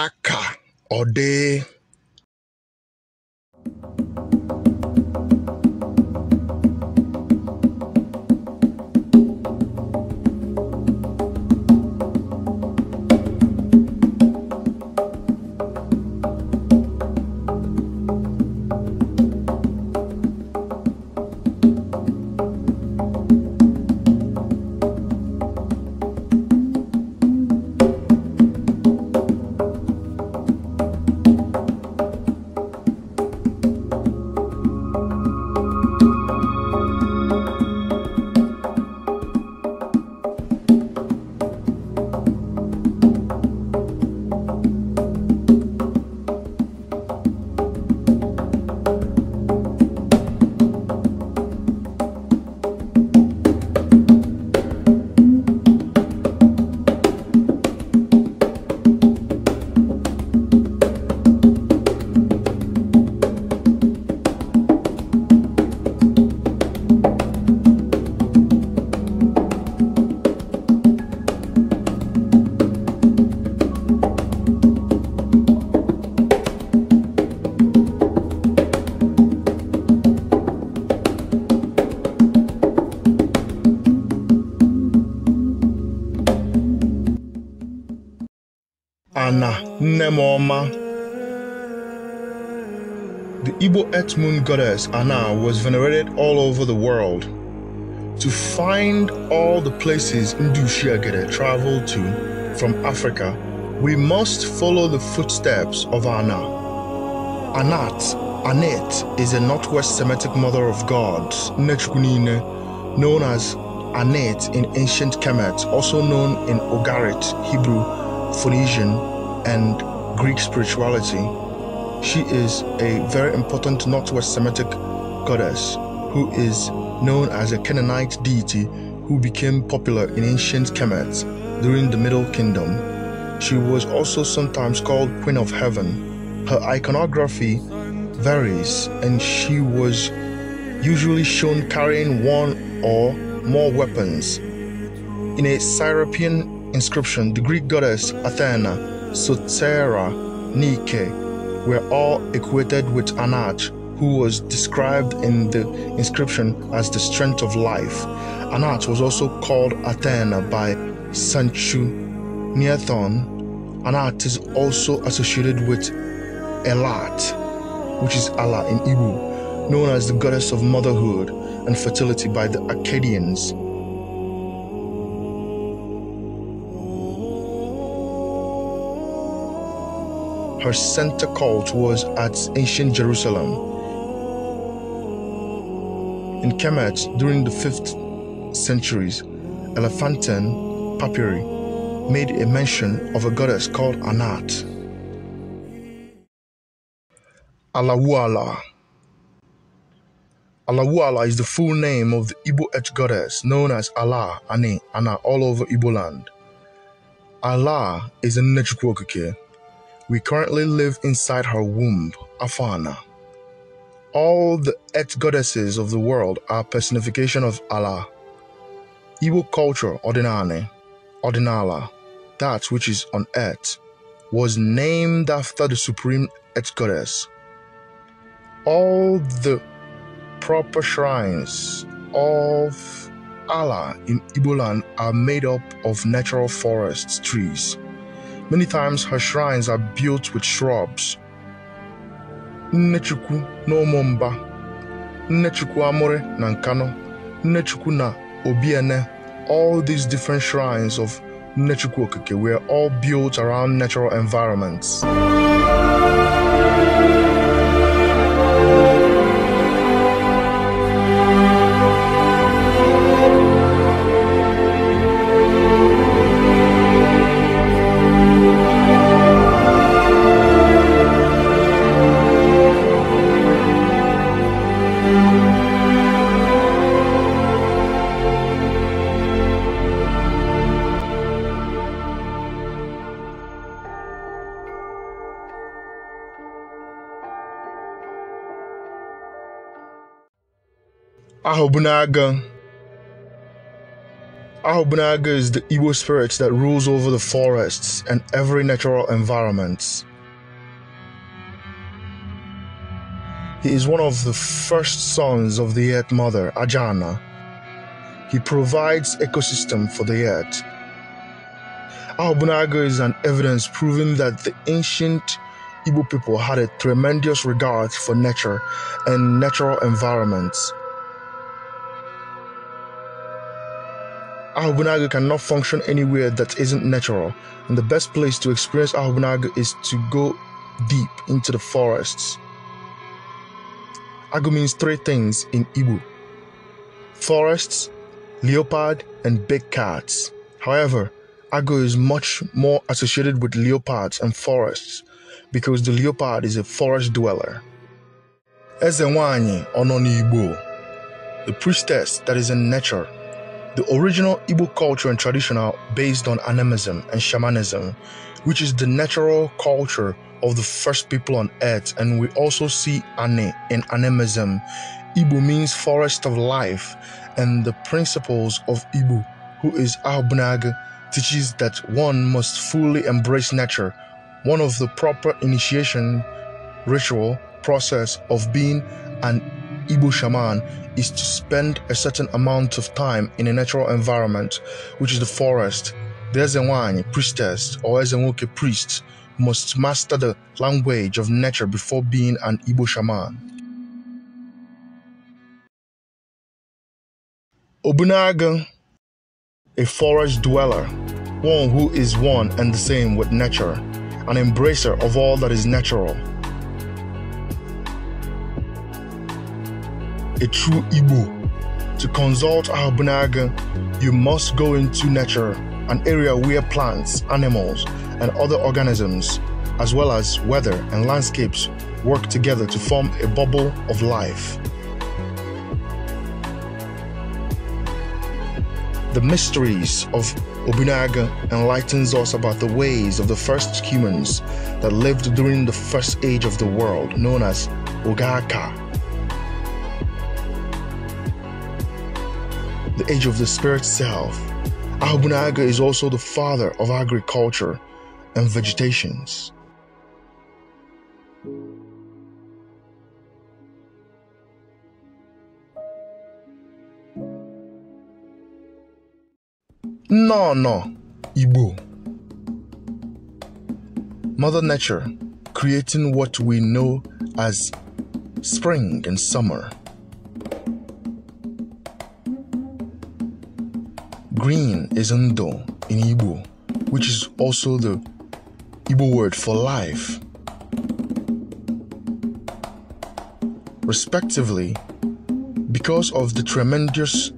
aka ọ dị Ana, nne the Igbo Earth Moon goddess Ana was venerated all over the world. To find all the places Ndushiagere traveled to from Africa, we must follow the footsteps of Ana. Anat, Anet is a Northwest Semitic mother of gods, Nechkunine, known as Anet in ancient Kemet, also known in Ogarit, Hebrew, Phoenician, and Greek spirituality, she is a very important Northwest Semitic goddess who is known as a Canaanite deity who became popular in ancient Kemet during the Middle Kingdom. She was also sometimes called Queen of Heaven. Her iconography varies, and she was usually shown carrying one or more weapons. In a Syropian inscription, the Greek goddess Athena Sotera, Nike were all equated with Anach, who was described in the inscription as the strength of life. Anach was also called Athena by Sanchu Neathon. Anat is also associated with Elat, which is Allah in Igbo, known as the goddess of motherhood and fertility by the Akkadians. her center cult was at ancient Jerusalem. In Kemet, during the 5th centuries, Elephantine papyri made a mention of a goddess called Anat. Alawuala. Alawuala is the full name of the Igbo etch goddess known as Allah Ani Ana all over Igbo land. Allah is a Nechukwu here. We currently live inside her womb, Afana. All the et goddesses of the world are personification of Allah. Igbo culture, Odinane, Ordinala, that which is on earth, was named after the supreme et goddess. All the proper shrines of Allah in Igbo land are made up of natural forests, trees, Many times her shrines are built with shrubs. Nnechukwu n'Omomba, Ụmụmba, Nnechukwu Amore na Nnechukwu na Obiene, all these different shrines of Nnechukwu Okike were all built around natural environments. Ahobunaga. Ahobunaga is the Igbo spirit that rules over the forests and every natural environment. He is one of the first sons of the Earth Mother, Ajana. He provides ecosystem for the Earth. Ahobunaga is an evidence proving that the ancient Igbo people had a tremendous regard for nature and natural environments. Ahubunaga cannot function anywhere that isn't natural, and the best place to experience Ahubunaga is to go deep into the forests. Agu means three things in Igbo forests, leopard, and big cats. However, Agu is much more associated with leopards and forests because the leopard is a forest dweller. Ezewanyi Ononi Igbo, the priestess that is in nature. The original Igbo culture and tradition are based on animism and shamanism, which is the natural culture of the first people on earth. And we also see Ane in animism. Igbo means forest of life, and the principles of Igbo, who is Ahubnag, teaches that one must fully embrace nature. One of the proper initiation ritual process of being an Igbo shaman is to spend a certain amount of time in a natural environment, which is the forest. The Ezenwany priestess or Ezenwoke priest must master the language of nature before being an Igbo shaman. Obunaga, a forest dweller, one who is one and the same with nature, an embracer of all that is natural. a true Igbo. To consult Ahabunaga, you must go into nature, an area where plants, animals, and other organisms, as well as weather and landscapes, work together to form a bubble of life. The mysteries of Obunaga enlightens us about the ways of the first humans that lived during the first age of the world, known as Ogaka. the age of the spirit self. Naga is also the father of agriculture and vegetations. No, no, Ibu, Mother Nature creating what we know as spring and summer. Green is ndo in Igbo, which is also the Igbo word for life. Respectively, because of the tremendous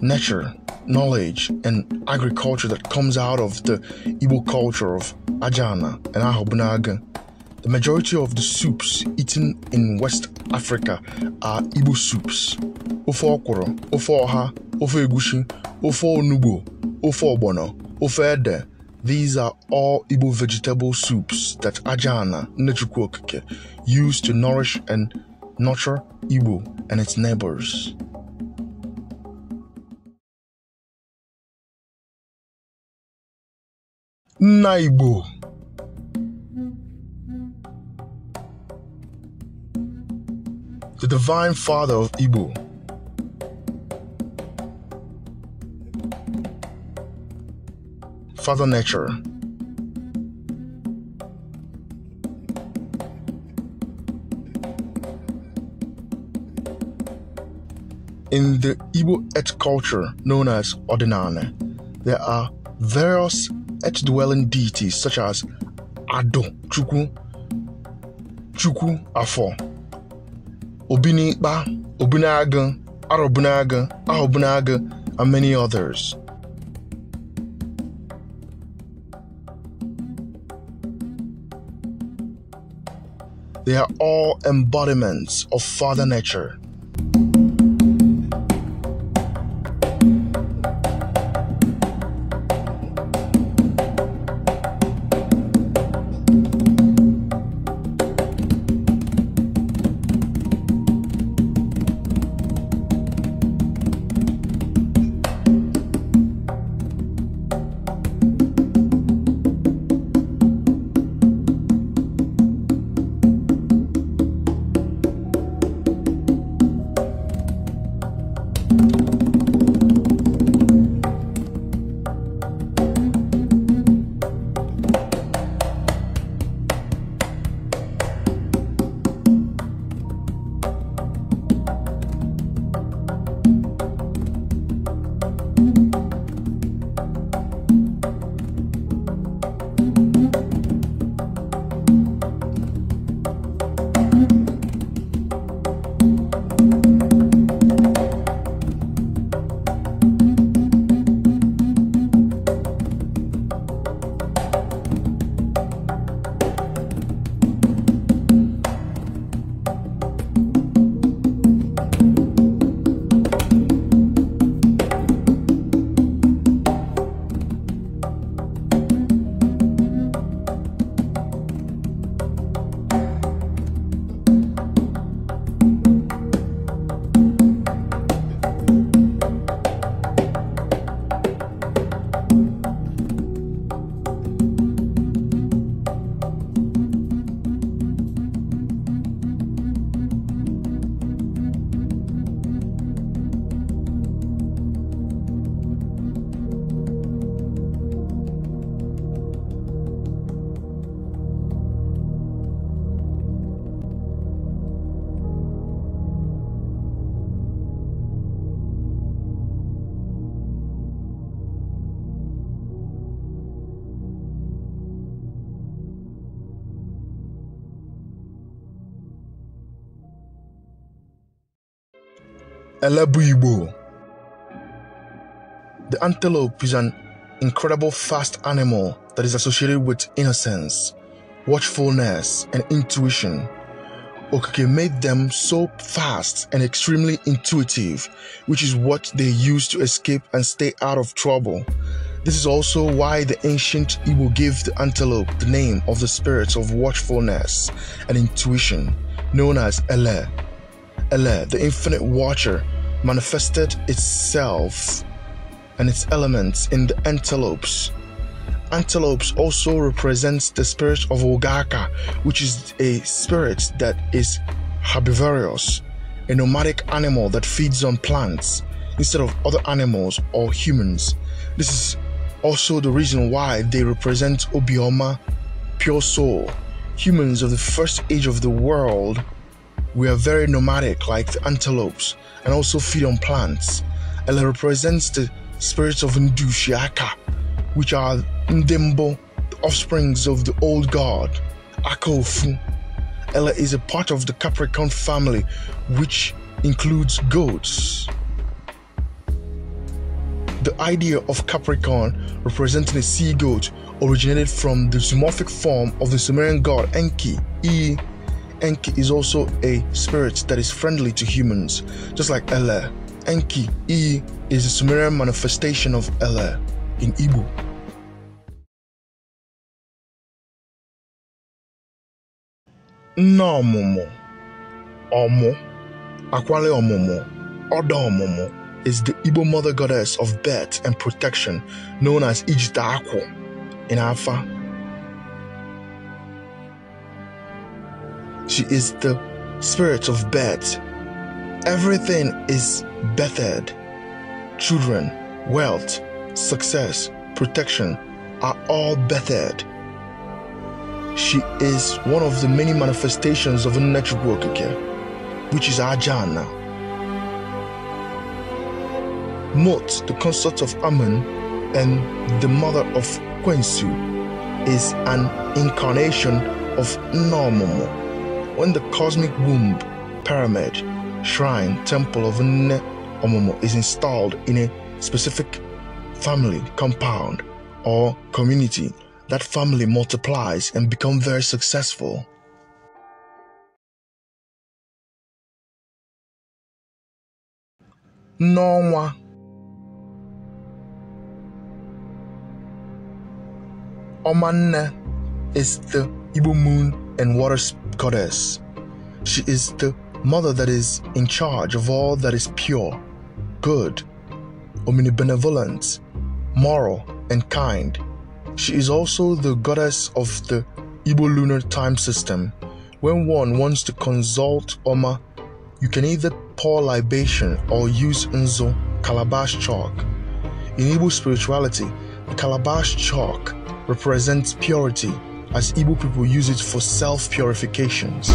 nature, knowledge, and agriculture that comes out of the Igbo culture of Ajana and Ahobunaga, the majority of the soups eaten in West Africa are Igbo soups. Ofe Ofoaha, ofe oha, ofe egusi, ofe onugbo, ede. These are all Igbo vegetable soups that Ajana Nechukwu used to nourish and nurture Igbo and its neighbors. Nna the divine father of Igbo. Father Nature. In the Igbo et culture known as Odinane, there are various et dwelling deities such as Ado, Chukwu, Chuku Afo, Obi Obunaga, Arobunaga, Ahobunaga, and many others. They are all embodiments of Father Nature. The antelope is an incredible fast animal that is associated with innocence, watchfulness, and intuition. Okike made them so fast and extremely intuitive, which is what they use to escape and stay out of trouble. This is also why the ancient Igbo gave the antelope the name of the spirits of watchfulness and intuition, known as Ele. Ele, the infinite watcher, manifested itself and its elements in the antelopes. Antelopes also represents the spirit of Ogaka, which is a spirit that is herbivorous, a nomadic animal that feeds on plants instead of other animals or humans. This is also the reason why they represent Obioma, pure soul. Humans of the first age of the world, we are very nomadic like the antelopes and also feed on plants. And it represents the spirits of Ndushiaka, which are Ndembo, the offsprings of the old god, Akofu. Ella is a part of the Capricorn family, which includes goats. The idea of Capricorn representing a sea goat originated from the zoomorphic form of the Sumerian god Enki, E Enki is also a spirit that is friendly to humans, just like Ele. Enki, E, is a Sumerian manifestation of Ele in Igbo. Nne ọmụmụ ọmụ akwale ọmụmụ ọdọ ọmụmụ is the Igbo mother goddess of birth and protection known as Ijita Akwu in Afa She is the spirit of Beth. Everything is Bethed. Children, wealth, success, protection are all Bethed. She is one of the many manifestations of a natural Okike, which is Ajana. Mot, the consort of Amun and the mother of Quensu, is an incarnation of Normomo when the cosmic womb, pyramid, shrine, temple of Nne Omomo is installed in a specific family, compound, or community, that family multiplies and become very successful. N'ọnwa Omanne is the Igbo moon and water goddess. She is the mother that is in charge of all that is pure, good, omnibenevolent, moral, and kind. She is also the goddess of the Igbo lunar time system. When one wants to consult Oma, you can either pour libation or use Nzo calabash chalk. In Igbo spirituality, the calabash chalk represents purity as Igbo people use it for self purifications.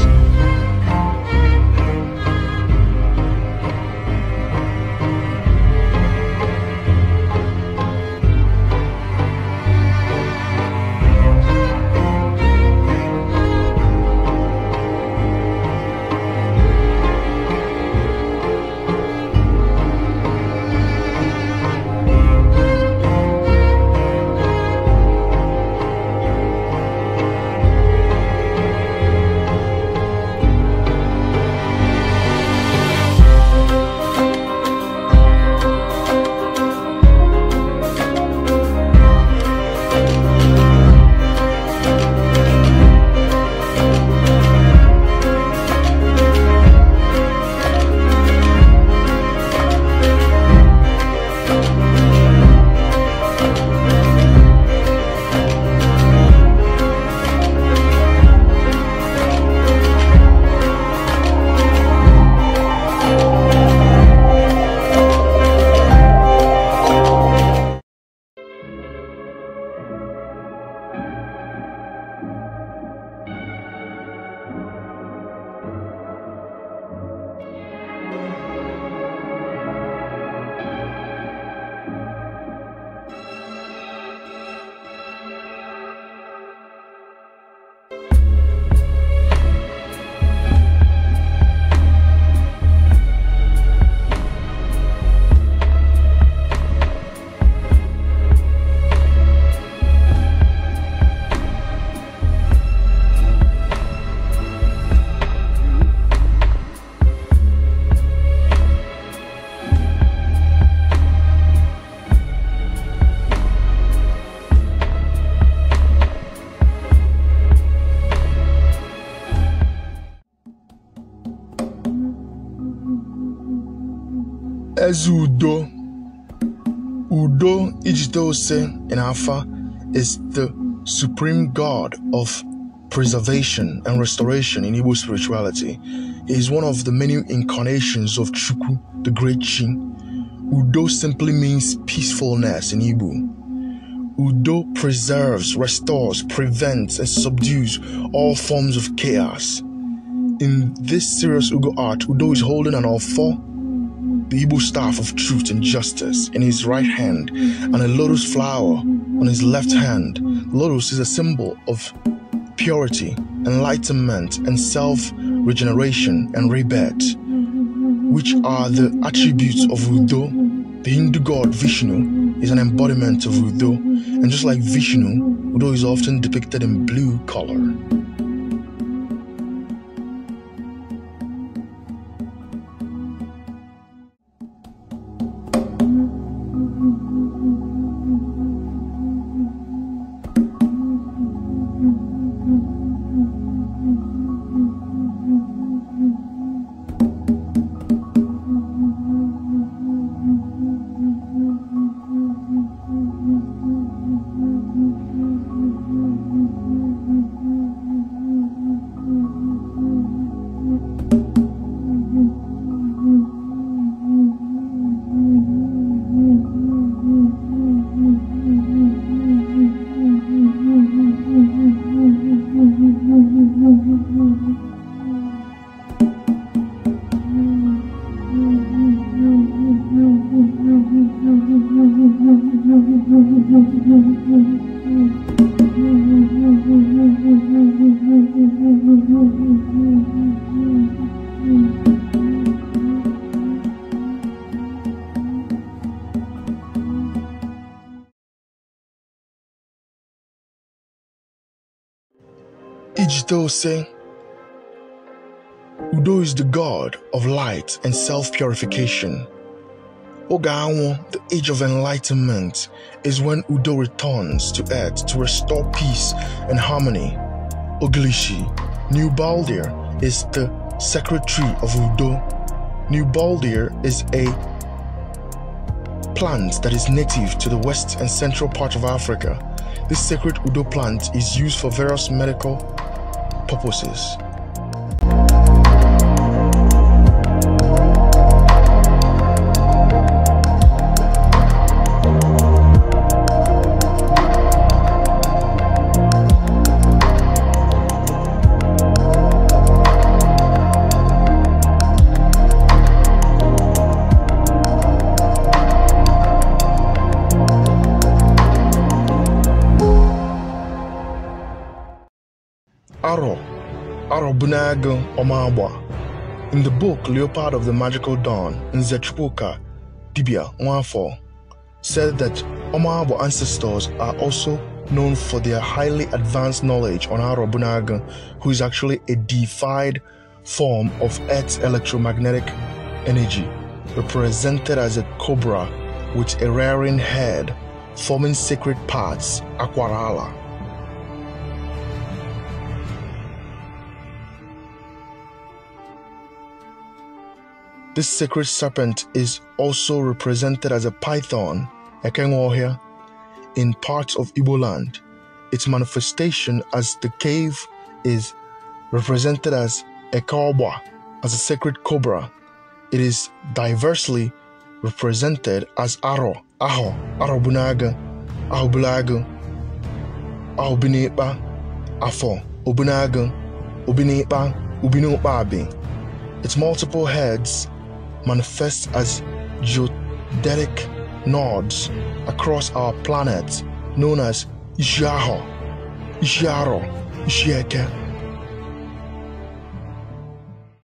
Maazị Udo Udo Ijidose Inafa is the supreme god of preservation and restoration in Igbo spirituality. He is one of the many incarnations of Chukwu, the great King. Udo simply means peacefulness in Igbo. Udo preserves, restores, prevents, and subdues all forms of chaos. In this serious Ugo art, Udo is holding an offer the staff of truth and justice in his right hand, and a lotus flower on his left hand. Lotus is a symbol of purity, enlightenment, and self regeneration and rebirth, which are the attributes of Udo. The Hindu god Vishnu is an embodiment of Udo, and just like Vishnu, Udo is often depicted in blue color. still say, Udo is the God of light and self purification. Ogawa, the age of enlightenment, is when Udo returns to earth to restore peace and harmony. Oglishi, New Baldir, is the secretary of Udo. New Baldir is a plant that is native to the west and central part of Africa. This sacred Udo plant is used for various medical purposes Aro Arobunag Omagba. In the book Leopard of the Magical Dawn, Nzechukwuka Dibia Nwafo said that Omagba ancestors are also known for their highly advanced knowledge on Arobunag, who is actually a defied form of Earth's electromagnetic energy, represented as a cobra with a rearing head, forming sacred parts, Aquarala. This sacred serpent is also represented as a python, Ekenwohia, in parts of Ibo land. Its manifestation as the cave is represented as Ekawba, as a sacred cobra. It is diversely represented as Aro, Aho, Arobunaga, Ahobulaga, Ahobinepa, Afo, Obunaga, Obinepa, Ubinopabi. Its multiple heads manifest as geodetic nodes across our planet known as Jaro, Jaro, Jeke,